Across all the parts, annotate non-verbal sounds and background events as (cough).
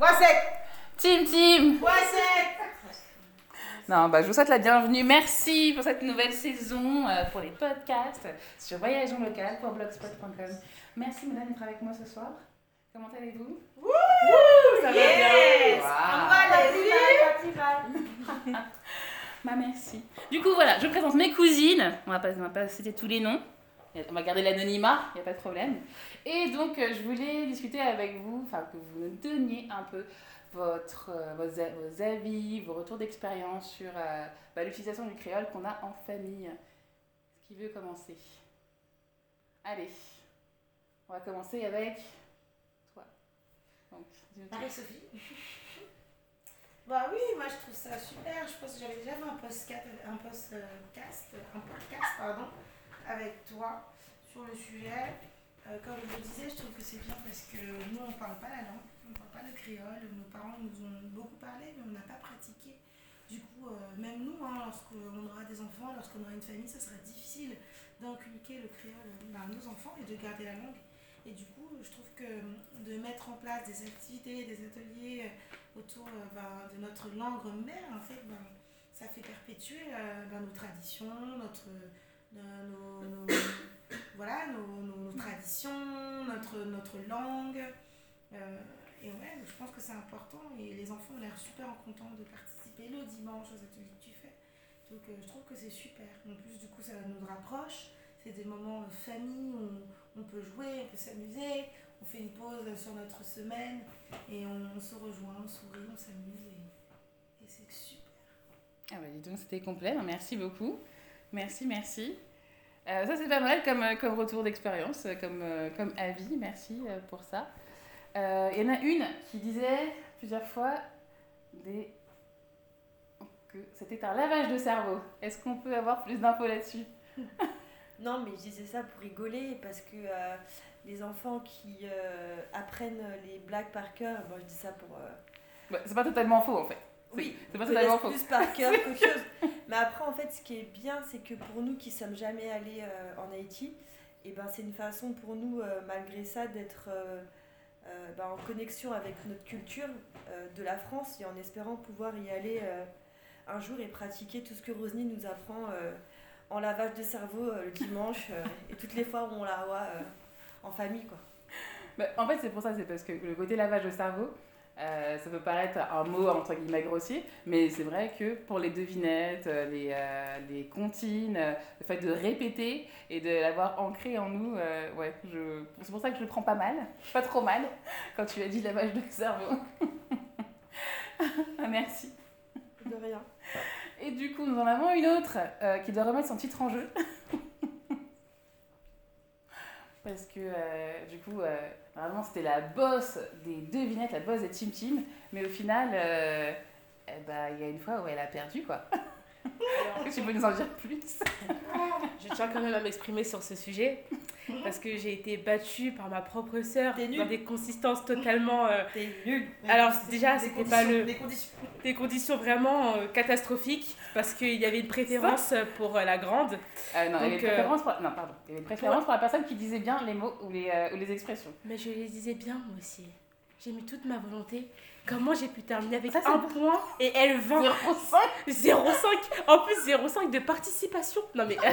wasek Team Team. wasek Non, bah, je vous souhaite la bienvenue. Merci pour cette nouvelle saison, euh, pour les podcasts sur Voyageons Local pour blogspot.com. Merci, madame, d'être avec moi ce soir. Comment allez-vous Wouh Ça yes va bien wow. (laughs) Bah, merci. Du coup, voilà, je vous présente mes cousines. On va pas, on va pas citer tous les noms. On va garder l'anonymat, il n'y a pas de problème. Et donc, euh, je voulais discuter avec vous, enfin, que vous me donniez un peu votre, euh, vos, vos, avis, vos retours d'expérience sur euh, bah, l'utilisation du créole qu'on a en famille. Qui veut commencer Allez, on va commencer avec toi. Donc, Marie-Sophie. (laughs) Bah oui, moi je trouve ça super. Je pense que j'avais déjà fait un podcast, un podcast, un podcast pardon, avec toi sur le sujet. Euh, comme je le disais, je trouve que c'est bien parce que nous, on ne parle pas la langue, on ne parle pas le créole. Nos parents nous ont beaucoup parlé, mais on n'a pas pratiqué. Du coup, euh, même nous, hein, lorsqu'on aura des enfants, lorsqu'on aura une famille, ça sera difficile d'inculquer le créole à nos enfants et de garder la langue. Et du coup, je trouve que de mettre en place des activités, des ateliers euh, autour euh, ben, de notre langue mère, en fait, ben, ça fait perpétuer euh, ben, nos traditions, notre de nos, nos (coughs) voilà, nos, nos, nos, traditions, notre, notre langue. Euh, et ouais, je pense que c'est important. Et les enfants ont l'air super contents de participer le dimanche aux ateliers que tu fais. Donc euh, je trouve que c'est super. En plus, du coup, ça nous rapproche. C'est des moments euh, famille où on, on, peut jouer, on peut s'amuser. On fait une pause sur notre semaine et on, on se rejoint, on sourit, on s'amuse et, et c'est super. Ah bah dis donc, c'était complet. Merci beaucoup. Merci, merci. Euh, ça, c'est pas mal comme, euh, comme retour d'expérience, euh, comme, euh, comme avis. Merci pour ça. Il euh, y en a une qui disait plusieurs fois des... que c'était un lavage de cerveau. Est-ce qu'on peut avoir plus d'infos là-dessus (laughs) Non, mais je disais ça pour rigoler parce que euh, les enfants qui apprennent les blagues par cœur, bon, je dis ça pour. Bah, c'est pas totalement faux en fait. Oui, c'est pas totalement faux. plus par cœur (laughs) qu'autre chose. Mais après, en fait, ce qui est bien, c'est que pour nous qui sommes jamais allés euh, en Haïti, et eh ben, c'est une façon pour nous, euh, malgré ça, d'être euh, euh ben, en connexion avec notre culture euh, de la France et en espérant pouvoir y aller euh, un jour et pratiquer tout ce que Rosny nous apprend en lavage de cerveau le dimanche et toutes les fois où on la voit en famille. Quoi. Bah, en fait, c'est pour ça, c'est parce que le côté lavage de cerveau, Euh, ça peut paraître un mot entre guillemets grossier, mais c'est vrai que pour les devinettes, euh, les, euh, les comptines, euh, le fait de répéter et de l'avoir ancré en nous, euh, ouais, je... c'est pour ça que je le prends pas mal, pas trop mal, quand tu as dit lavage de cerveau. (laughs) Ah, merci. De rien. Et du coup, nous en avons une autre qui doit remettre son titre en jeu. Parce que euh, du coup, euh, vraiment, c'était la bosse des devinettes, la bosse des Tim Tim. Mais au final, euh, eh il euh, bah, y a une fois où elle a perdu, quoi. (laughs) tu (laughs) peux nous en dire plus Je tiens quand même à m'exprimer sur ce sujet parce que j'ai été battue par ma propre sœur dans des consistances totalement. Euh... T'es nulle. Alors déjà, c'était pas le. Des conditions. Des conditions vraiment euh, catastrophiques parce qu'il y avait une préférence pour euh, la grande. Euh, non, Donc, il y avait une euh, préférence pour... non, pardon. Il y avait une préférence pour la personne qui disait bien les mots ou les, euh, ou les expressions. Mais je les disais bien moi aussi. J'ai mis toute ma volonté. Comment j'ai pu terminer avec ça, un point et elle 20 0,5 En plus, 0,5 de participation. Non, mais, euh,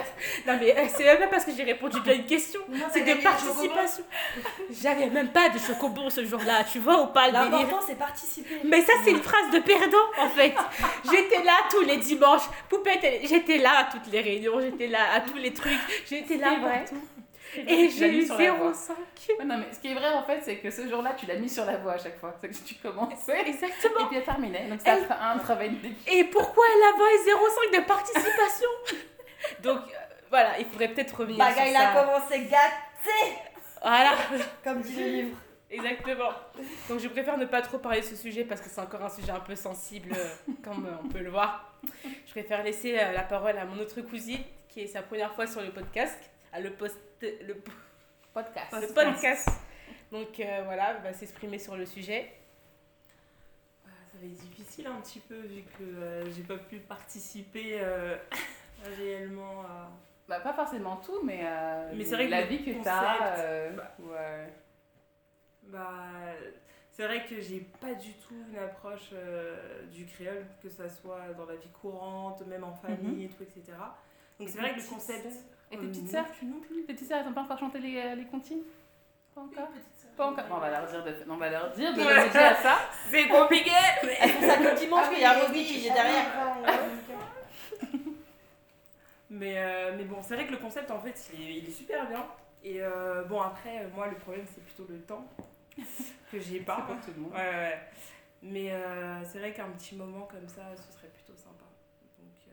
non, mais euh, c'est même pas parce que j'ai répondu à une question. C'est de participation. J'avais même pas de chocobon ce jour-là. Tu vois ou pas L'important, c'est participer. Mais ça, c'est une phrase de perdant, en fait. j'étais là tous les dimanches. Poupette, j'étais là à toutes les réunions. J'étais là à tous les trucs. J'étais là partout. Et j'ai eu 0,5. Ouais, non, mais ce qui est vrai en fait, c'est que ce jour-là, tu l'as mis sur la voie à chaque fois. C'est que tu commençais. (laughs) Exactement. Et puis elle terminait. Donc ça elle... un travail de Et pourquoi elle avait 0,5 de participation (laughs) Donc euh, voilà, il faudrait peut-être revenir Baga, sur il ça. a commencé gâté Voilà (laughs) Comme dit le livre. Exactement. Donc je préfère ne pas trop parler de ce sujet parce que c'est encore un sujet un peu sensible, euh, comme euh, on peut le voir. Je préfère laisser euh, la parole à mon autre cousine qui est sa première fois sur le podcast. à le, post le podcast. Le podcast. Donc euh, voilà, va s'exprimer sur le sujet. Ah, ça va être difficile un petit peu vu que euh, j'ai pas pu participer euh, (laughs) réellement à. Bah, pas forcément tout, mais, euh, mais c'est vrai la que vie que tu as. Euh, bah, ouais. bah c'est vrai que j'ai pas du tout une approche euh, du créole, que ça soit dans la vie courante, même en mhm. famille mm -hmm. et tout, etc. Donc c'est vrai que le concept, Et tes petites sœurs non plus. Tes petites sœurs, elles n'ont pas encore chanté les, euh, les comptines Pas encore Pas encore. Bon, on va leur dire de, on va leur dire de à ça. (laughs) C'est compliqué Elles ça que dimanche, ah y a qui est derrière. Mais, euh, mais bon, c'est vrai que le concept, en fait, il est, il est super bien. Et euh, bon, après, euh, moi, le problème, c'est plutôt le temps (laughs) que j'ai pas. Pour tout le monde. Ouais, ouais. Mais euh, c'est vrai qu'un petit moment comme ça, ce serait plutôt sympa. Donc, euh,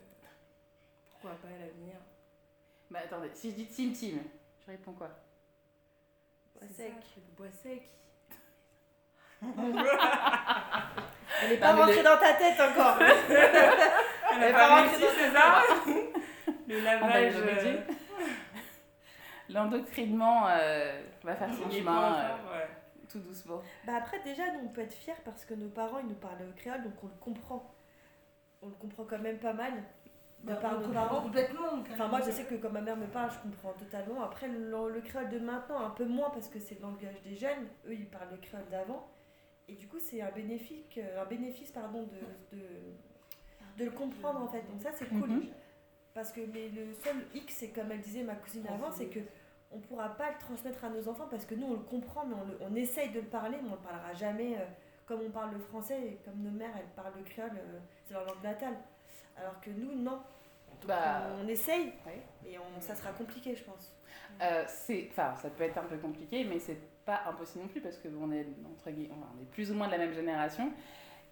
pourquoi pas à l'avenir Bah attendez, si je dis Tim Tim, je réponds quoi Bois sec. Ça, bois sec. (laughs) Elle est pas non, rentrée les... dans ta tête encore. (laughs) Elle n'est pas rentrée dans ta tête. (laughs) Le ah, lavage. Euh... L'endoctrinement euh, va faire son chemin euh, ouais. tout doucement. Bah après déjà nous on peut être fiers parce que nos parents ils nous parlent créole donc on le comprend. On le comprend quand même pas mal. d'un parent parent. Complètement. Enfin, moi, je sais que quand ma mère me parle, je comprends totalement. Après, le, le créole de maintenant, un peu moins parce que c'est le langage des jeunes. Eux, ils parlent le créole d'avant. Et du coup, c'est un bénéfice, euh, un bénéfice pardon, de, de, de le comprendre en fait. Donc, ça, c'est cool. Mm -hmm. Parce que mais le seul hic, c'est comme elle disait ma cousine avant, c'est que on ne pourra pas le transmettre à nos enfants parce que nous, on le comprend, mais on, le, on essaye de le parler, mais on le parlera jamais euh, comme on parle le français et comme nos mères, elles parlent le créole, euh, c'est leur langue natale. Alors que nous, non. Donc, bah, on essaye, ouais. mais on, ça sera compliqué, je pense. Euh, c'est, enfin, ça peut être un peu compliqué, mais c'est pas impossible non plus parce que on est entre on est plus ou moins de la même génération.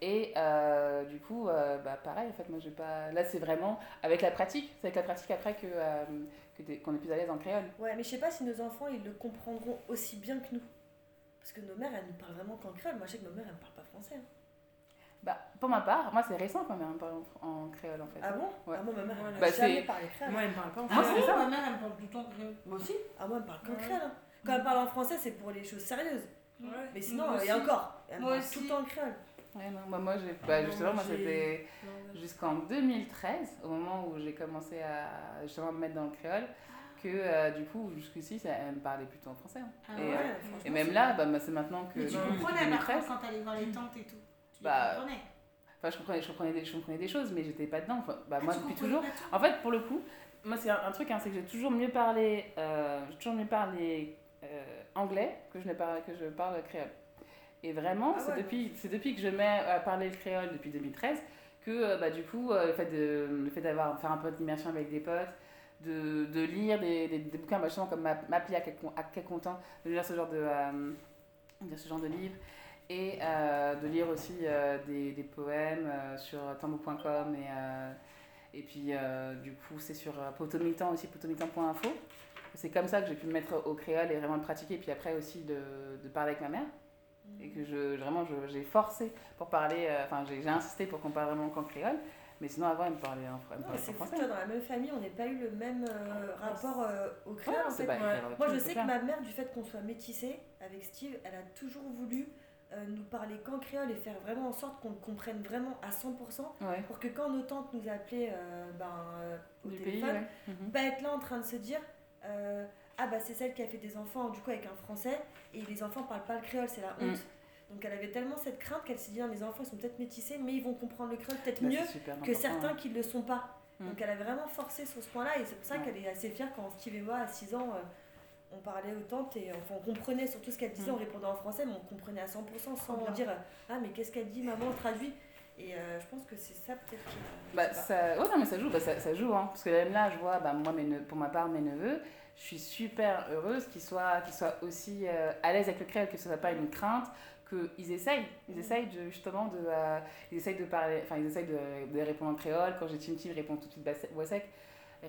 Et euh, du coup, euh, bah, pareil, en fait, moi, j'ai pas. Là, c'est vraiment avec la pratique. C'est avec la pratique après que euh, qu'on qu est plus à l'aise en créole. Ouais, mais je sais pas si nos enfants ils le comprendront aussi bien que nous, parce que nos mères elles nous parlent vraiment qu'en créole. Moi, je sais que ma mère elle me parle pas français. Hein. Bah, pour ma part, moi c'est récent quand même, parle en, créole en fait. Ah bon ouais. Ah bon, ma mère elle bah, jamais parlé créole. Moi elle parle pas en français. Ah c'est ça Ma mère elle me parle tout le temps créole. Moi aussi Ah moi elle parle qu'en créole. Hein. Quand elle parle en français c'est pour les choses sérieuses. Ouais. Mais sinon, il y a encore. Elle moi me parle aussi. tout le temps en créole. Ouais, non, bah, moi, j'ai, bah, justement, moi, c'était jusqu'en 2013, au moment où j'ai commencé à justement me mettre dans le créole, que euh, du coup, jusqu'ici, elle me parlait plutôt en français. Hein. Ah et, ouais, euh, et, même là, bah, bah c'est maintenant que. Mais tu quand t'allais voir les tantes et tout. bah, enfin, je comprenais, je comprenais, des, je comprenais des choses, mais j'étais pas dedans. Enfin, bah, ah, moi, depuis toujours. En fait, pour le coup, moi, c'est un, un, truc, hein, c'est que j'ai toujours mieux parlé, euh, toujours mieux parlé euh, anglais que je, ne parle, que je parle créole. Et vraiment, ah, c'est ouais. depuis, depuis que je mets à parler le créole, depuis 2013, que euh, bah, du coup, euh, le fait, de, le fait d'avoir faire un peu d'immersion avec des potes, de, de lire des, des, des bouquins, bah, justement, comme M'appeler à quel, à quel content, de lire ce genre de, euh, de ce genre de livres. et euh, de lire aussi euh, des, des, poèmes euh, sur tambo.com et, et puis du coup c'est sur potomitan aussi, potomitan.info. C'est comme ça que j'ai pu me mettre au créole et vraiment le pratiquer, puis après aussi de, de parler avec ma mère et que je, vraiment j'ai forcé pour parler, enfin euh, j'ai insisté pour qu'on parle vraiment qu'en créole, mais sinon avant elle me parlait en, elle me parlait non, en français. dans la même famille, on n'a pas eu le même euh, ah, rapport euh, au créole ouais, en fait. Pas, ouais. Moi je sais que ma mère, du fait qu'on soit métissé avec Steve, elle a toujours voulu euh, nous parler qu'en créole et faire vraiment en sorte qu'on comprenne vraiment à 100% ouais. pour que quand nos tantes nous appelaient euh, ben, euh, au du téléphone, pays, ouais. Mhm. pas mmh. être là en train de se dire euh Ah bah c'est celle qui a fait des enfants du coup avec un français et les enfants parlent pas le créole, c'est la mm. honte. Mmh. Donc elle avait tellement cette crainte qu'elle s'est dit Mes enfants ils sont peut-être métissés mais ils vont comprendre le créole peut-être bah, mieux que certains hein. qui ne le sont pas. Mmh. Donc elle avait vraiment forcé sur ce point-là et c'est pour ça qu'elle est assez fière quand Steve et moi à 6 ans euh, on parlait autant, et, enfin, on comprenait surtout ce qu'elle disait, on mm. répondait en français, mais on comprenait à 100% sans dire Ah, mais qu'est-ce qu'elle dit, maman, on traduit. Et euh, je pense que c'est ça peut-être qui. Bah, ça... Ouais, non, mais ça joue, bah, ça, ça, joue, hein. Parce que même là, je vois, bah, moi, mes ne... pour ma part, mes neveux, je suis super heureuse qu'ils soient, qu'ils soient aussi euh, à l'aise avec le créole, que ce soit pas une crainte, ils essayent. Ils mm. essayent de, justement de. Euh, ils essayent de parler, enfin, ils essayent de, de répondre en créole. Quand j'ai une ils répondent tout de suite voix sec.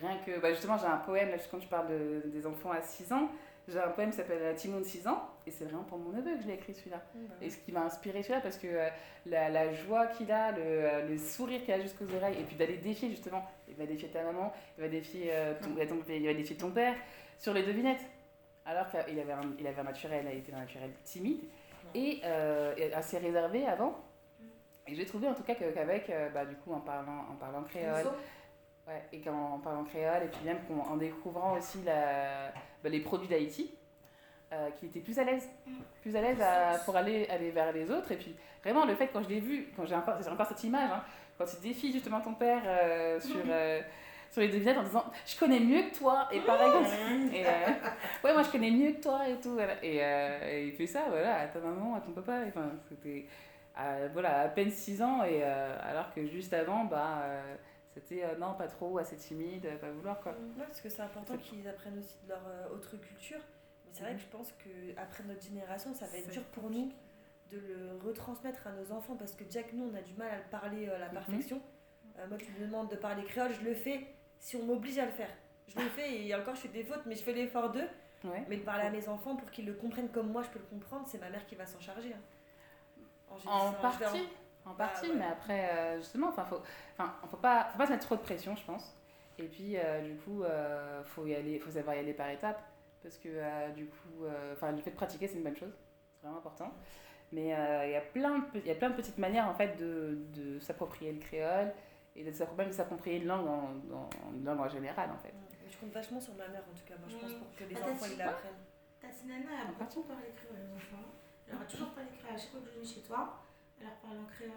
Rien que, bah justement, j'ai un poème, là, quand je parle de, des enfants à 6 ans, j'ai un poème qui s'appelle Timon de 6 ans, et c'est vraiment pour mon neveu que je l'ai écrit celui-là. Mmh. Et ce qui m'a inspiré celui-là, parce que euh, la, la, joie qu'il a, le, euh, le sourire qu'il a jusqu'aux oreilles, et puis d'aller défier justement, il va défier ta maman, il va défier, euh, ton, mmh. ton, il va défier ton père, sur les devinettes. Alors qu'il avait, un, il avait un naturel, il était un naturel timide, mmh. et assez réservé avant. Et j'ai trouvé en tout cas qu'avec, euh, bah, du coup, en parlant, en parlant créole. Ouais, et qu'en parlant créole, et puis même en découvrant aussi la, bah, les produits d'Haïti, euh, qui était plus à l'aise, mm. plus à l'aise pour aller, aller vers les autres. Et puis vraiment, le fait, quand je l'ai vu, quand j'ai encore, encore cette image, hein, quand tu défies justement ton père euh, sur, euh, sur les devinettes en disant Je connais mieux que toi, et pareil, et, euh, ouais, moi je connais mieux que toi, et tout. Voilà. Euh, et, il fait ça, voilà, à ta maman, à ton papa, enfin, c'était voilà, à peine 6 ans, et euh, alors que juste avant, bah C'était euh, non, pas trop, assez timide, euh, pas vouloir quoi. Mm. Non, parce que c'est important qu'ils apprennent aussi de leur euh, autre culture. Mais c'est mmh. vrai mm. que je pense que après notre génération, ça va être dur pour nous de le retransmettre à nos enfants parce que déjà que nous, on a du mal à le parler euh, à la mm-hmm. perfection. Mmh. moi, tu me demandes de parler créole, je le fais si on m'oblige à le faire. Je le ah. fais et encore, je fais des fautes, mais je fais l'effort d'eux. Ouais. Mais de parler à mes enfants pour qu'ils le comprennent comme moi je peux le comprendre, c'est ma mère qui va s'en charger. Hein. En, en partie, En ah, partie, ah, ouais. mais après, euh, justement, enfin, faut, enfin, faut pas, faut pas se mettre trop de pression, je pense. Et puis, euh, du coup, euh, faut y aller, faut savoir y aller par étapes, parce que euh, du coup, euh, enfin, le fait de pratiquer, c'est une bonne chose, c'est vraiment important. Mais il euh, y a plein de, il plein de petites manières en fait de, de s'approprier le créole et de s'approprier une langue en, en une langue en général, en fait. Je compte vachement sur ma mère, en tout cas, moi, je pense, mm. pour que les ah, enfants ils l'apprennent. Ta nana, elle a beaucoup parlé créole, les enfants. Elle aura toujours parlé créole à chaque fois que je viens chez toi. Elle en créole.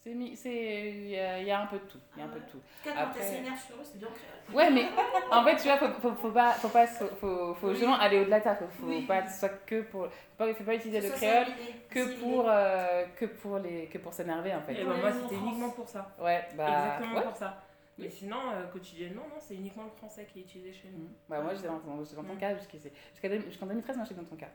C'est il y, y, un peu tout, il y a un peu de tout. Ah sur eux, c'est bien créole. Ouais, mais en fait, tu vois, faut, faut, faut pas, faut pas, faut, faut oui. aller au-delà de ça, faut, oui. pas soit que pour, faut pas, faut pas utiliser le créole que pour, euh, que pour les, que pour s'énerver en fait. Et eh ouais, pour ça. Ouais, bah. Exactement ouais. pour ça. Mais sinon, euh, quotidiennement, non, c'est uniquement le français qui est utilisé chez nous. Mmh. Bah, ouais. moi, j'étais dans, dans, ton mmh. cas, jusqu'à 2013, moi, j'étais dans ton cas.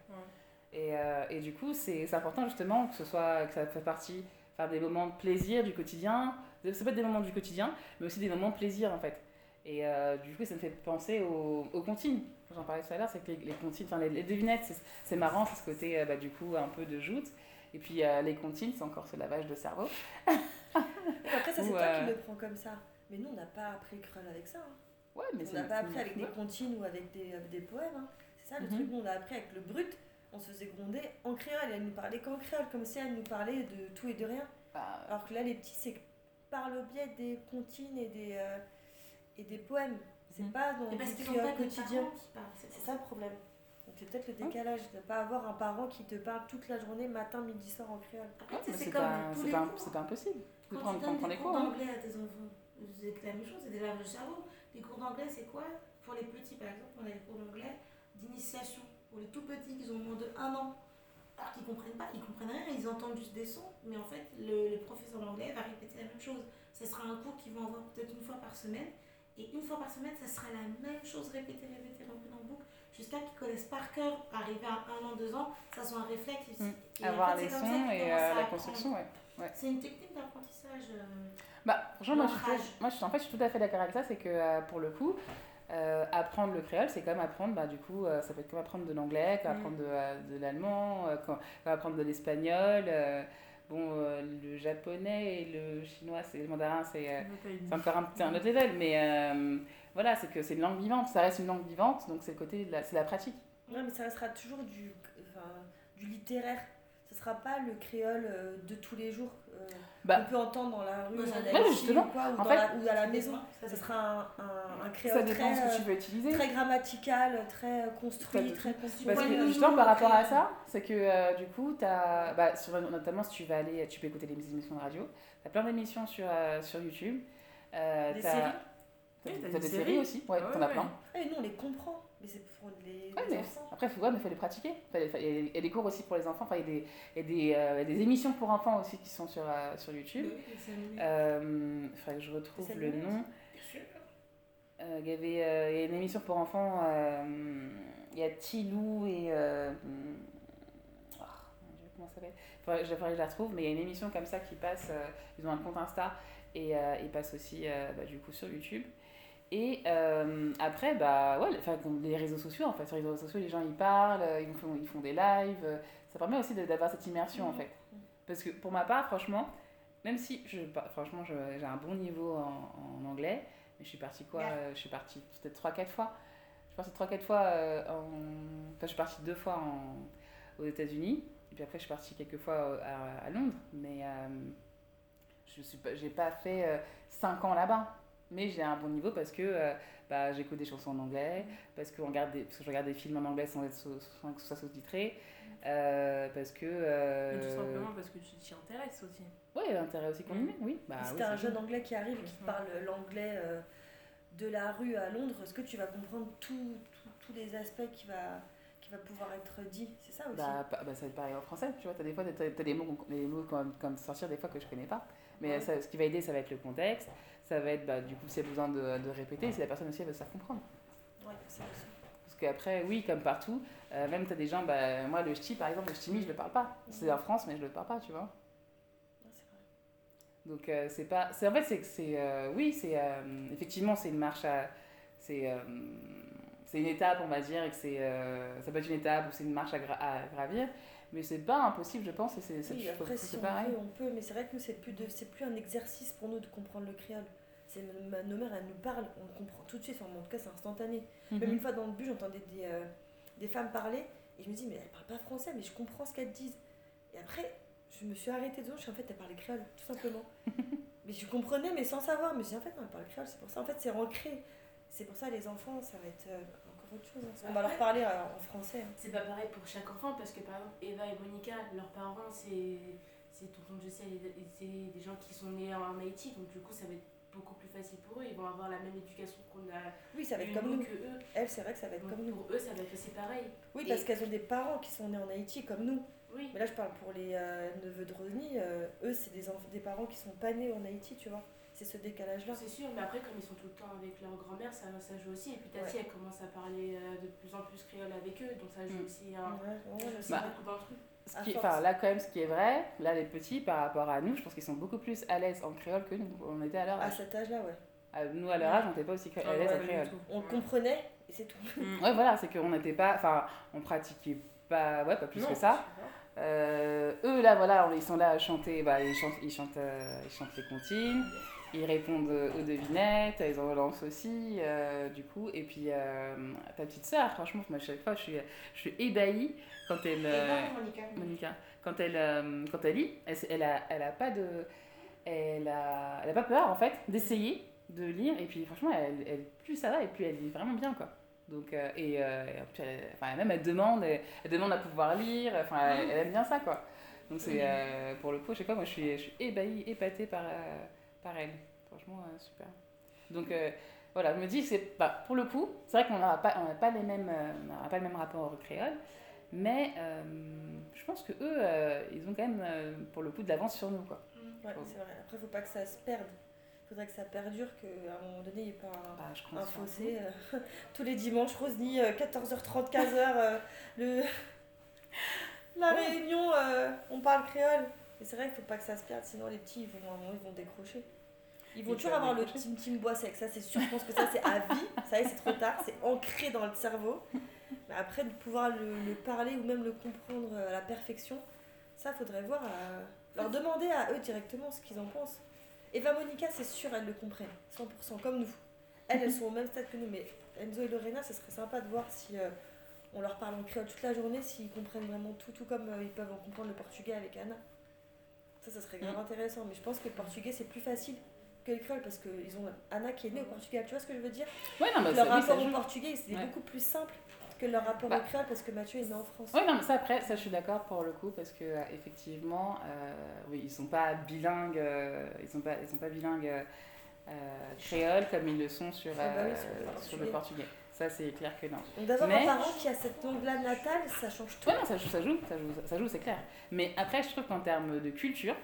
Et, euh, et du coup, c'est important justement que, ce soit, que ça fait partie, faire des moments de plaisir du quotidien. Ça peut être des moments du quotidien, mais aussi des moments de plaisir en fait. Et euh, du coup, ça me fait penser aux, aux comptines. J'en parlais tout à l'heure, c'est que les, les comptines, enfin les, les, devinettes, c'est marrant, c'est ce côté euh, bah, du coup un peu de joute. Et puis euh, les comptines, c'est encore ce lavage de cerveau. (laughs) Après, ça, c'est toi qui euh, le prends comme ça. Mais nous, on n'a pas appris le crawl avec ça. Hein. Ouais, mais on n'a pas appris avec des comptines ou avec des, avec des poèmes. Hein. C'est ça le mm -hmm. truc, on a appris avec le brut. on se faisait gronder en créole. Elle nous parlait qu'en créole, comme si elle nous parlait de tout et de rien. Bah, euh. Alors que là, les petits, c'est par le biais des comptines et des, euh, et des poèmes. C'est mmh. pas dans le créole quotidien. C'est ça le problème. Donc c'est peut-être le décalage de ne pas avoir un parent qui te parle toute la journée, matin, midi, soir en créole. Après, c'est comme pas, tous les pas, cours. C'est pas impossible. Quand, quand tu donnes des, des cours d'anglais à tes enfants, c'est la même chose, c'est des laves de cerveau. Les cours d'anglais, c'est quoi Pour les petits, par exemple, on a les cours d'anglais d'initiation. pour les tout petits qui ont moins de 1 an, alors qu'ils comprennent pas, ils comprennent rien, ils entendent juste des sons, mais en fait, le, le professeur d'anglais va répéter la même chose. Ce sera un cours qu'ils vont avoir peut-être une fois par semaine, et une fois par semaine, ça sera la même chose répétée, répétée, répétée en boucle, jusqu'à qu'ils connaissent par cœur, arriver à un an, deux ans, ça soit un réflexe. Mmh. Avoir les sons et euh, la construction, ouais. ouais. C'est une technique d'apprentissage. Euh, bah, genre, moi, je, moi je, en fait, je suis tout à fait d'accord avec ça, c'est que euh, pour le coup, Euh, apprendre le créole, c'est comme apprendre, bah, du coup, euh, ça peut être comme apprendre de l'anglais, comme mm. apprendre de, euh, de l'allemand, euh, comme, apprendre de l'espagnol. Euh, bon, euh, le japonais et le chinois, c'est le mandarin, c'est encore un, un autre level, mais voilà, c'est que c'est une langue vivante, ça reste une langue vivante, donc c'est le côté de la, la pratique. Non, mais ça restera toujours du, enfin, du littéraire. sera pas le créole euh, de tous les jours euh, bah. qu'on peut entendre dans la rue ouais, ou, quoi, ou, dans fait, la, ou, à la maison. ce sera un, un, un créole très, que tu veux utiliser. très grammatical, très euh, construit, ça, très construit. Parce que justement, par rapport à ça, c'est que euh, du coup, as, bah, sur, notamment si tu vas aller, tu peux écouter des émissions de radio, tu as plein d'émissions sur, euh, sur YouTube. Euh, des séries T'as oui, eh, des, des séries, séries aussi Ouais, ouais ah t'en as plein. Et ah nous, on les comprend. Mais c'est pour les, ouais, mais enfants. Après, il ouais, mais faut les pratiquer. Il y a des cours aussi pour les enfants. Enfin, il y a des, euh, y a des, émissions pour enfants aussi qui sont sur, euh, sur YouTube. Oui, euh, il faudrait que je retrouve le nom. Bien sûr. Euh, il, y avait, y a une émission pour enfants. il y a Tilou et. Oh, comment ça s'appelle J'aimerais que je la retrouve, mais il y a une émission comme ça qui passe. ils ont un compte Insta et ils passent aussi bah, du coup sur YouTube. Et euh, après, bah, ouais, les réseaux sociaux, en fait. Sur les réseaux sociaux, les gens, ils parlent, ils font, ils font des lives. Ça permet aussi d'avoir cette immersion, en mm. fait. Parce que pour ma part, franchement, même si, je, franchement, j'ai un bon niveau en, en, anglais, mais je suis partie quoi euh, Je suis partie peut-être 3-4 fois. Je suis partie 3-4 fois euh, en... Enfin, je suis partie 2 fois en... aux États-Unis. Et puis après, je suis partie quelques fois euh, à, à Londres. Mais euh, je n'ai pas, pas fait 5 ans là-bas mais j'ai un bon niveau parce que euh, bah, j'écoute des chansons en anglais, parce que, on regarde des, parce que je regarde des films en anglais sans, être, sans que ce soit sous-titré, euh, parce que... Euh... Mais tout simplement parce que tu t'y intéresses aussi. Ouais, intérêt aussi combiné, mmh. oui. Bah, si oui, t'as un jeune anglais qui arrive et qui te parle l'anglais euh, de la rue à Londres, est-ce que tu vas comprendre tous les aspects qui va qui va pouvoir être dit, c'est ça aussi bah, bah, Ça va être pareil en français, tu vois, tu as des fois t as, t as des mots, des mots comme, comme, sortir des fois que je connais pas. Mais ouais. ça, ce qui va aider, ça va être le contexte, ça va être, bah, du coup, si y' a besoin de, de répéter, si la personne aussi elle veut se faire comprendre. Ouais, c'est ça. Parce qu'après, oui, comme partout, euh, même tu as des gens, bah, moi le ch'ti par exemple, le ch'timi, je le parle pas. C'est en France, mais je le parle pas, tu vois. Donc euh, c'est pas. En fait, c'est que c'est. Euh, oui, c'est. Euh, effectivement, c'est une marche à. C'est euh, c'est une étape, on va dire, et que c'est, euh, ça peut être une étape ou c'est une marche à, gra à gravir. mais c'est pas impossible, je pense, et c'est oui, après, si on pareil. Peut, on peut, mais c'est vrai que nous, c'est plus, de, plus un exercice pour nous de comprendre le créole. Ma, nos mères, elles nous parlent, on comprend tout de suite, enfin, en tout cas, c'est instantané. Mm -hmm. Même mhm. une fois dans le bus, j'entendais des, euh, des femmes parler, et je me dis, mais elles parlent pas français, mais je comprends ce qu'elles disent. Et après, je me suis arrêtée devant, je suis en fait, elle parlait créole, tout simplement. (laughs) mais je comprenais, mais sans savoir. Mais je dis, en fait, non, elle parle créole, c'est pour ça. En fait, c'est ancré. C'est pour ça, les enfants, ça va être. Euh, autre chose. On va leur parler euh, en français. C'est pas pareil pour chaque enfant parce que par exemple Eva et Monica, leurs parents c'est c'est tonton Jessé et c'est des gens qui sont nés en Haïti donc du coup ça va être beaucoup plus facile pour eux, ils vont avoir la même éducation qu'on a. Oui, ça va être comme nous. Que eux. Elles, c'est vrai que ça va être donc, comme nous. Pour eux, ça va être aussi pareil. Oui, et... parce qu'elles ont des parents qui sont nés en Haïti comme nous. Oui. Mais là, je parle pour les euh, neveux de Rosny, euh, eux, c'est des, des parents qui sont pas nés en Haïti, tu vois. c'est ce décalage-là. C'est sûr, mais après, comme ils sont tout le temps avec leur grand-mère, ça, ça joue aussi. Et puis Tati, ouais. elle commence à parler euh, de plus en plus créole avec eux, donc ça joue mmh. aussi, un, ouais, ouais, aussi bah, beaucoup d'un Ce qui, enfin, là, quand même, ce qui est vrai, là, les petits, par rapport à nous, je pense qu'ils sont beaucoup plus à l'aise en créole que nous. On était à leur âge. À cet âge-là, ouais. Nous, à leur âge, on n'était pas aussi ah, à l'aise en créole. On comprenait, et c'est tout. Mmh. ouais, voilà, c'est qu'on n'était pas. Enfin, on pratiquait pas, ouais, pas plus non, que ça. Euh, eux, là, voilà, ils sont là à chanter, bah, ils chantent, ils chantent, euh, ils chantent les comptines. ils répondent aux devinettes, ils en relancent aussi, euh, du coup. Et puis, euh, ta petite sœur, franchement, à chaque fois, je suis, je suis ébahie quand elle... Euh, Monica. Monica. Quand elle, euh, quand elle lit, elle, elle, a, elle a pas de... Elle a, elle a pas peur, en fait, d'essayer de lire. Et puis, franchement, elle, elle, plus ça va, et plus elle lit vraiment bien, quoi. Donc, euh, et, euh, et puis elle, enfin, même, elle demande, elle, elle, demande à pouvoir lire. Enfin, elle, mmh. aime bien ça, quoi. Donc, c'est... Mmh. pour le coup, je sais pas, moi, je suis, je suis ébahie, épatée par pareil. Franchement, euh, super. Donc euh, voilà, je me dis, c'est pas pour le coup, c'est vrai qu'on n'aura pas, on pas, les euh, on pas le même rapport au créole, mais euh, je pense que eux, euh, ils ont quand même, euh, pour le coup, de l'avance sur nous. Quoi. Mmh. Ouais, c'est vrai. Après, il faut pas que ça se perde. Il faudrait que ça perdure, qu'à un moment donné, il n'y ait pas un, bah, je un fossé. (laughs) tous les dimanches, Rosny, 14h30, 15h, le... (laughs) la réunion, on parle créole. Et c'est vrai qu'il faut pas que ça se perde, sinon les petits, ils vont, à un ils vont décrocher. Ils vont toujours avoir le Tim Tim bois sec, ça c'est sûr. Je pense que ça c'est à vie, ça y est, c'est trop tard, c'est ancré dans le cerveau. Mais après, de pouvoir le, le, parler ou même le comprendre à la perfection, ça faudrait voir, à... Euh, leur demander à eux directement ce qu'ils en pensent. Eva Monica, c'est sûr, elles le comprennent, 100%, comme nous. Elles, elles sont au même stade que nous, mais Enzo et Lorena, ce serait sympa de voir si euh, on leur parle en créole toute la journée, s'ils comprennent vraiment tout, tout comme euh, ils peuvent en comprendre le portugais avec Anna. Ça, ça serait grave mm. intéressant. Mais je pense que le portugais, c'est plus facile que le créole parce qu'ils ont Anna qui est née au Portugal. Tu vois ce que je veux dire ouais, non, bah, Leur rapport au portugais, c'est ouais. beaucoup plus simple que leur rapport bah. au créole parce que Mathieu est né en France. Oui, non, mais ça, après, ça, je suis d'accord pour le coup parce que euh, effectivement, euh, oui, ils sont pas bilingues. Euh, ils, sont pas, ils sont pas bilingues. Euh, euh, créoles. comme ils le sont sur, ah bah oui, sur, le portugais. Sur le portugais. ça c'est clair que non. D'avoir mais... un parent qui a cette langue-là natale, ça change tout. oui non, ça, ça joue, ça joue, ça joue, c'est clair. Mais après, je trouve qu'en termes de culture,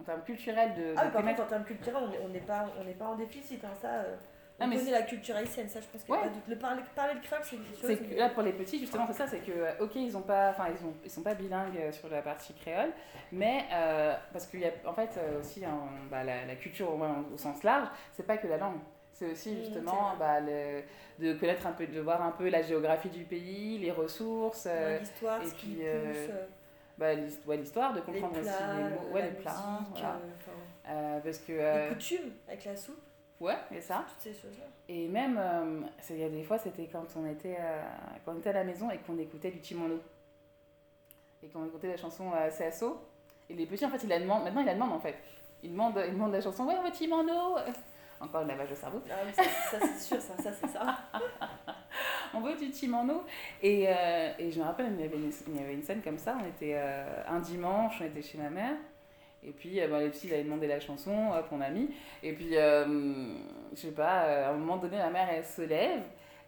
en termes culturels de. Ah, de par contre, en termes culturels, on n'est pas, on est pas en déficit, hein, ça. Euh... Ah, mais la culture haïtienne, ça je pense qu'il ouais. de... Le parler, parler de créole, c'est une chose. Que, là pour les petits, justement, c'est ça, c'est que, euh, ok, ils ont pas, enfin, ils, ont, ils sont pas bilingues euh, sur la partie créole, mais euh, parce qu'il y a en fait euh, aussi hein, bah, la, la, culture au, moins au sens large, c'est pas que la langue. C'est aussi justement mmh, bah, le, de connaître un peu, de voir un peu la géographie du pays, les ressources. Ouais, euh, l'histoire, et ce puis, euh, pousse, euh. bah, l'histoire, de comprendre les plats, aussi les mots, ouais, les plats. Musique, voilà. euh, parce que, euh, les coutumes avec la soupe. Ouais, et ça. Toutes ces choses-là. Et même, il euh, y a des fois, c'était quand, on était quand on était à la maison et qu'on écoutait du Chimono. Et qu'on écoutait la chanson CSO. Et les petits, en fait, ils la demandent. Maintenant, ils la demandent, en fait. Ils demandent, ils demandent la chanson Ouais, ouais, Chimono Encore le lavage de cerveau. Ah, ça, ça c'est sûr, ça, ça c'est ça. (laughs) on veut du chimano. Et, euh, et je me rappelle, il y, avait une, il y, avait une, scène comme ça. On était euh, un dimanche, on était chez ma mère. Et puis, euh, bah, les filles avaient demandé la chanson, hop, on a mis. Et puis, euh, je sais pas, euh, à un moment donné, ma mère, elle se lève.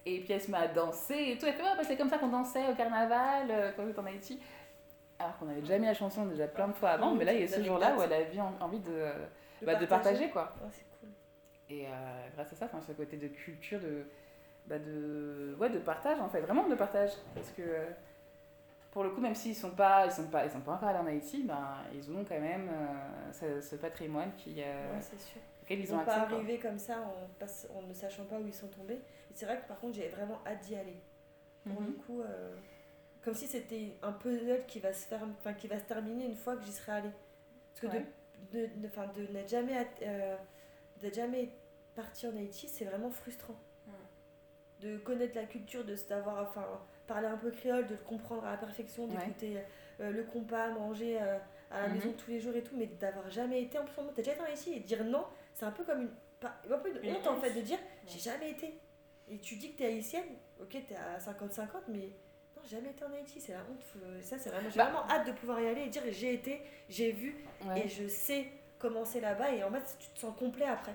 Et puis, elle se met à danser et tout. Elle fait, ouais, bah, c'est comme ça qu'on dansait au carnaval euh, quand j'étais en Haïti. Alors qu'on avait déjà mis la chanson déjà plein de fois avant. mais là, il y a ce jour-là où elle avait envie de, de, bah, partager. de partager, quoi. Oh, Et euh, grâce à ça, ce côté de culture, de, bah de, ouais, de partage, en fait, vraiment de partage. Parce que euh, pour le coup, même s'ils ne sont, pas, ils sont, pas, ils sont pas encore allés en Haïti, ben, ils ont quand même euh, ce, ce, patrimoine qui, euh, ouais, c'est sûr. auquel ils, ils ont accès. pas arrivé comme ça en, passe, en ne sachant pas où ils sont tombés. Et c'est vrai que par contre, j'ai vraiment hâte d'y aller. Pour mm-hmm. le mhm. coup, euh, comme si c'était un puzzle qui va se, faire, qui va se terminer une fois que j'y serai allée. Parce que ouais. de, de, de, de n'être jamais. À, d'être jamais parti en Haïti, c'est vraiment frustrant. Mmh. De connaître la culture, de savoir, enfin, parler un peu créole, de le comprendre à la perfection, d'écouter ouais. euh, le compas, manger euh, à la mmh. maison mm-hmm. tous les jours et tout, mais d'avoir jamais été en plus, t'as déjà été en Haïti et dire non, c'est un peu comme une, pas, un peu une honte en fait de dire ouais. j'ai jamais été. Et tu dis que t'es haïtienne, ok, t'es à 50-50, mais non, jamais été en Haïti, c'est la honte. Ça, c'est vraiment, j'ai bah. vraiment hâte de pouvoir y aller et dire j'ai été, j'ai vu ouais. et je sais commencer là-bas et en fait tu te sens complet après.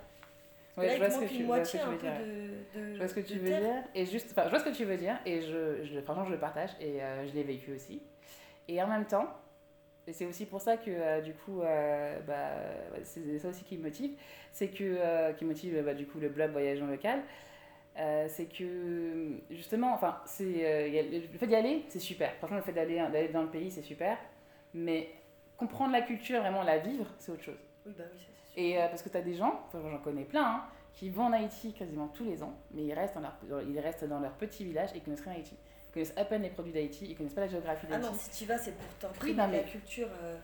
Ouais, là, je vois ce que tu, moitié, je vois ce que tu veux dire. De, de, je vois ce que tu veux terre. dire. Et juste, enfin, je vois ce que tu veux dire. Et je, je franchement, je le partage. Et euh, je l'ai vécu aussi. Et en même temps, et c'est aussi pour ça que, euh, du coup, euh, bah, c'est ça aussi qui me motive. C'est que, euh, qui motive, bah, du coup, le blog Voyage en local. Euh, c'est que, justement, enfin, c'est, euh, le fait d'y aller, c'est super. Franchement, le fait d'aller dans le pays, c'est super. Mais comprendre la culture, vraiment la vivre, c'est autre chose. Oui, bah oui, ça sûr. Et euh, parce que tu as des gens, enfin, j'en connais plein, hein, qui vont en Haïti quasiment tous les ans, mais ils restent dans leur, ils restent dans leur petit village et ils connaissent rien Haïti. Ils connaissent à peine les produits d'Haïti, ils connaissent pas la géographie d'Haïti. Ah non, si tu vas, c'est pour t'imprimer oui, mais... la culture. Euh...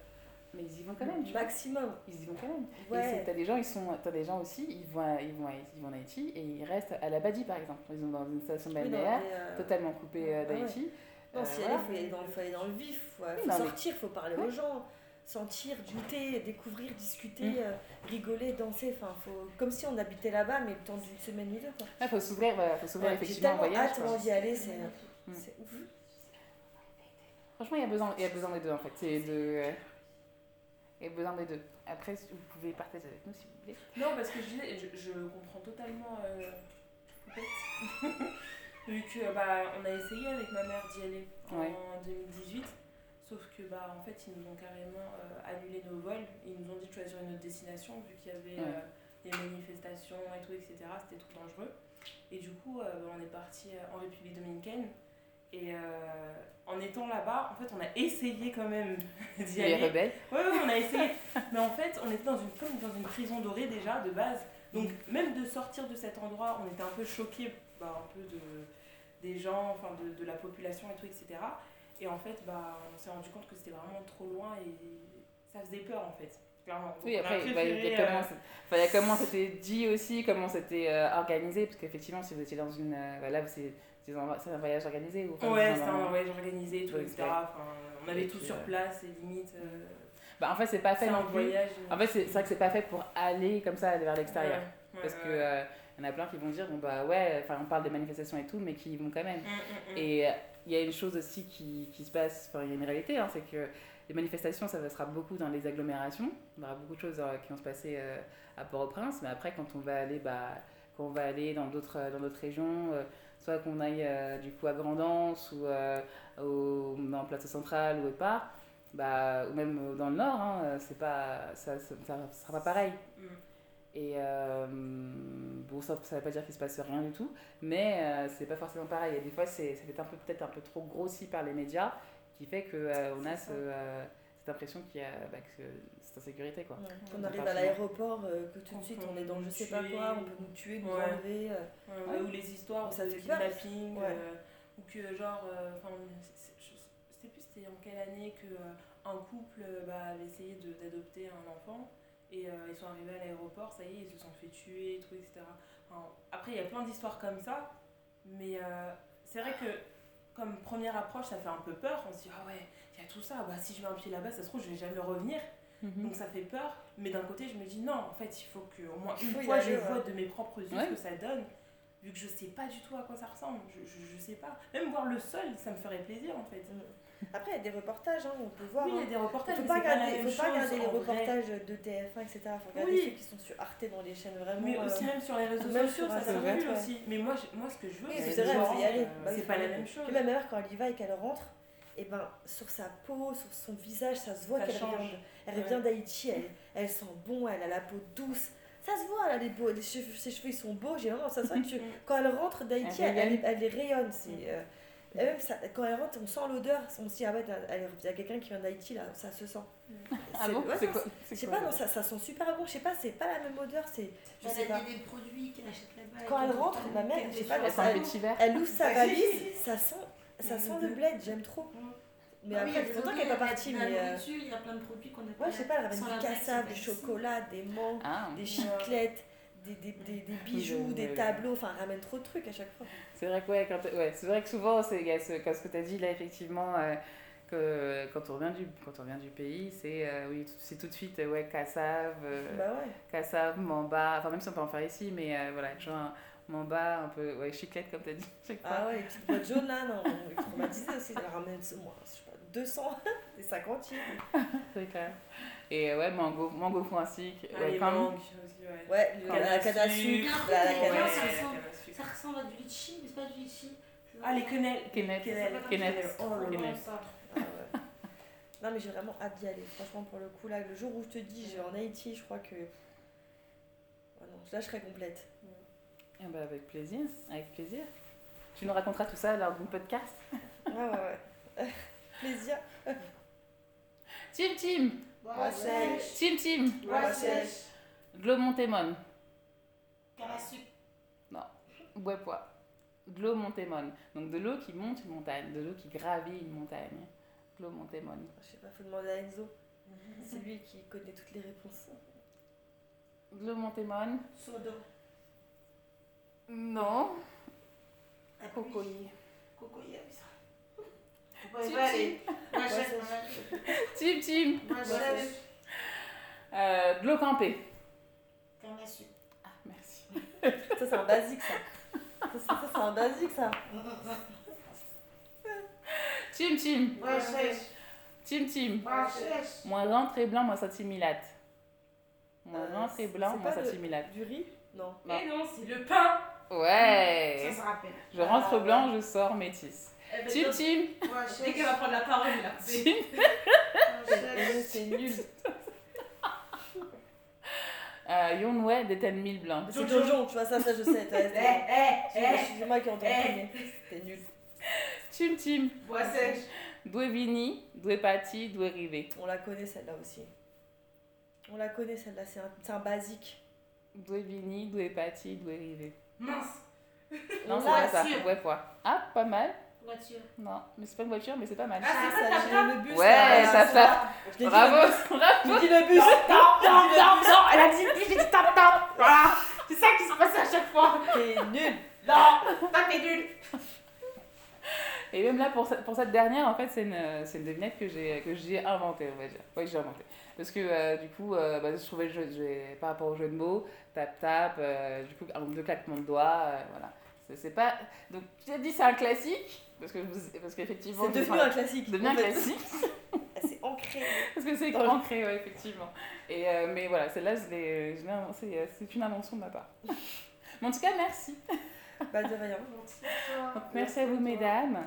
Mais ils y vont quand même. Tu maximum. Vois. Ils y vont quand même. Ouais. T'as des gens, ils sont, as des gens aussi, ils vont, à, ils vont, à, ils vont en Haïti et ils restent à la Badi par exemple. Ils sont dans une station balnéaire euh... totalement coupée euh, d'Haïti. Ouais. Non, euh, si voilà. elle est, faut aller dans le, faut aller dans le vif, faut, oui, faut sortir, il mais... faut parler ouais. aux gens. sentir, goûter, découvrir, discuter, mmh. euh, rigoler, danser. Enfin, faut, comme si on habitait là-bas, mais le temps d'une semaine ou deux. Il ah, faut s'ouvrir, bah, faut s'ouvrir ouais, effectivement. J'ai tellement hâte d'y aller, c'est mmh. ouf. Franchement, il y, a besoin, il y a besoin des deux en fait. Il de, euh, y a besoin des deux. Après, vous pouvez partager avec nous si vous voulez. Non, parce que je, disais je, je comprends totalement. Euh, (laughs) Vu que bah, on a essayé avec ma mère d'y aller ouais. en 2018 Sauf que, bah, en fait, ils nous ont carrément euh, annulé nos vols. Ils nous ont dit de choisir une autre destination, vu qu'il y avait ouais. euh, des manifestations et tout, etc. C'était trop dangereux. Et du coup, euh, on est parti euh, en République dominicaine. Et euh, en étant là-bas, en fait, on a essayé quand même (laughs) d'y aller. Les rebelles ouais, ouais, on a essayé. (laughs) Mais en fait, on était dans une, comme dans une prison dorée déjà, de base. Donc, même de sortir de cet endroit, on était un peu choqués, bah, un peu de, des gens, enfin, de, de la population et tout, etc. Et en fait, bah, on s'est rendu compte que c'était vraiment trop loin et ça faisait peur en fait. Clairement. Donc, oui, après, il bah, y, a euh... enfin, y a comment c'était dit aussi, comment c'était euh, organisé, parce qu'effectivement, si vous étiez dans une. Euh, là, c'est un, un voyage organisé ou enfin, Ouais, c'était un, voyage organisé, tout, ouais, etc. Enfin, on avait et tout puis, sur euh, place et limite. Euh, bah, en fait, c'est pas fait. Un voyage. Euh, en fait, c'est vrai que c'est pas fait pour aller comme ça vers l'extérieur. Ouais, ouais, parce que y en a plein qui vont dire, bon bah ouais, enfin on parle des manifestations et tout, mais qui y vont quand même. Mm, mm, mm. Et euh, il y a une chose aussi qui, qui se passe, enfin il y a une réalité, hein, c'est que les manifestations, ça passera beaucoup dans les agglomérations. Il y aura beaucoup de choses euh, qui vont se passer euh, à Port-au-Prince, mais après quand on va aller, bah, quand on va aller dans d'autres euh, dans d'autres régions, euh, soit qu'on aille euh, du coup à Grandance ou au, en Plateau Central ou autre part, bah, ou même dans le Nord, hein, c'est pas, ça, ça, ça, sera pas pareil. Et euh, bon, ça ne veut pas dire qu'il se passe rien du tout, mais euh, c'est pas forcément pareil. Et des fois, c'est, ça fait un peu, peut-être un peu trop grossi par les médias, qui fait qu'on euh, on a ce, euh, cette impression qu'il y a bah, que cette insécurité. Quoi. Ouais. Quand on, arrive à l'aéroport, euh, que tout de suite on, est dans je sais tuer, pas quoi, on peut nous tuer, nous ouais. enlever. Euh. Ouais, ou les histoires, ça fait kidnapping, ou que genre, je ne sais plus c'était en quelle année qu'un couple bah, avait essayé de, d'adopter un enfant Et euh, ils sont arrivés à l'aéroport, ça y est, ils se sont fait tuer, tout, etc. Enfin, après, il y a plein d'histoires comme ça, mais euh, c'est vrai que comme première approche, ça fait un peu peur. On se dit, ah ouais, il y a tout ça, bah, si je mets un pied là-bas, ça se trouve, je ne vais jamais revenir. Mm -hmm. Donc ça fait peur, mais d'un côté, je me dis, non, en fait, il faut que au moins une fois, je vois de mes propres yeux ouais. ce que ça donne, vu que je ne sais pas du tout à quoi ça ressemble, je, ne sais pas. Même voir le sol, ça me ferait plaisir, en fait. Mm -hmm. Après, il y a des reportages, on peut voir. Oui, il y a des reportages. ne faut pas regarder, pas faut pas regarder les reportages vrai. de TF1, etc. Il faut regarder oui. ceux qui sont sur Arte dans les chaînes vraiment. Mais aussi, euh... même sur les réseaux même sociaux, ça circule ouais. aussi. Mais moi, moi, ce que je veux, y aller. Euh, bah, c'est pas la même chose. ma mère, quand elle y va et qu'elle rentre, et eh ben sur sa peau, sur son visage, ça se voit qu'elle revient, elle ouais. revient d'Haïti, elle, elle, sent bon, elle a la peau douce. Ça se voit, là, les beaux, les cheveux, ses cheveux ils sont beaux, j'ai vraiment ça se voit que tu, (laughs) quand elle rentre d'Haïti, elle, elle, elle, les rayonne. C'est, euh, Et même ça, quand elle rentre, on sent l'odeur. On se dit, ah ouais, il y a quelqu'un qui vient d'Haïti là, ça se sent. Ah bon ouais, Je sais pas, non, ça, ça, sent super bon. Je sais pas, c'est pas la même odeur. C'est, je sais pas. des produits qu'elle achète là-bas. Quand elle rentre, ma mère, je sais pas, elle, elle, ouvre sa valise, ça sent, ça sent le bled, j'aime trop. Mais ah après, c'est qu'elle n'est pas partie. Euh, il y a plein de produits qu'on a Ouais, je sais pas, elle du cassave, du chocolat, des mangues, ah, des chiclettes. des, des, des, des ah, bijoux, oui, des oui, tableaux, enfin ramène trop de trucs à chaque fois. C'est vrai que, ouais, quand ouais, vrai que souvent, c'est, ce, quand ce que tu as dit là, effectivement, euh, que, quand, on revient du, quand on revient du pays, c'est, euh, oui, c'est tout de suite ouais, cassave, euh, bah ouais. cassave, mamba, enfin même si on peut en faire ici, mais euh, voilà, genre mamba, un peu ouais, chiclette comme tu as dit. Ah ouais, là, non, aussi, ramène ce moi. Je 200 (laughs) (laughs) Et euh, ouais, Ah, ouais, les mangues aussi, ouais. Ouais, la canne à sucre. La, canne à sucre. Ça ressemble à du litchi, mais c'est pas du Ah, les quenelles. Quenelles. Oh quenelles. Ah, ah ouais. non, mais j'ai vraiment hâte d'y aller. Franchement, pour le coup, là, le jour où je te dis, j'ai en Haïti, je crois que. Ah je serai complète. Ah, eh bah, avec plaisir. Avec plaisir. Tu nous raconteras tout ça lors podcast. ah, ouais, (laughs) plaisir. Tim Tim. Bois sèche. Tim Tim. Bois sèche. Glomontémon. Carassuc. Non. Bois Glomontémon. Donc de l'eau qui monte une montagne, de l'eau qui gravit une montagne. Glomontémon. Je sais pas, faut demander à Enzo. C'est lui qui connaît toutes les réponses. Glomontémon. Sodo. Non. Cocoyer. Cocoyer, ça. Vai, vai, Tim, Tim. de l'eau campée. sucre. Ah, merci. ça, c'est un basique, ça. Ça, ça c'est un basique, ça. Tim, Tim. Tim, Tim. Moins rentre et blanc, moins satimilate. Moins euh, blanc, Du riz Non. Mais eh non, c'est le pain. Ouais. Ça se rappelle. Je rentre ah, blanc, je sors métisse. Eh ben, Tune, Dès qu'elle va prendre la parole, (laughs) C'est nul. (laughs) Euh, Yon Wei des 10 000 blindes. Jojo, tu vois, ça, ça je sais. Eh, eh, eh, c'est moi qui entends C'était nul. Tim Tim. Bois sèche. Vini, Rivé. On la connaît celle-là aussi. On la connaît celle-là, c'est un, un, basique. Doué Vini, Doué Pati, Doué Rivé. Mince. Non, c'est ça, Ah, pas mal. voiture. Non, mais c'est pas une voiture, mais c'est pas mal. Ah, c'est ça, ça le bus. Ouais, ça fait. Bravo, (laughs) bravo. J'ai dit le bus. Non, non non. elle a dit j'ai dit tap tap. Voilà, ah, c'est ça qui se passe à chaque fois. T'es nul. Non, toi t'es nul. (laughs) Et même là, pour, cette, pour cette dernière, en fait, c'est une, une devinette que j'ai, que j'ai inventée, on va dire. Oui, j'ai inventé. Parce que euh, du coup, euh, bah, je trouvais le jeu, par rapport au jeu de mots, tap-tap, euh, du coup, un ou deux claquements de doigts, euh, voilà. C'est, pas... Donc, tu as dit c'est un classique, parce que parce qu'effectivement c'est devenu un classique devenu un classique (laughs) ah, c'est ancré (laughs) parce que c'est ancré ouais, effectivement et euh, mais voilà celle-là je l'ai euh, c'est une invention de ma part (laughs) mais en tout cas merci bah de rien merci, merci à vous mesdames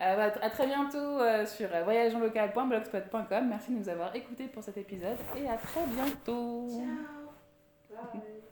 euh, bah, à très bientôt euh, sur euh, voyageonlocal.blogspot.com merci de nous avoir écoutés pour cet épisode et à très bientôt ciao Bye.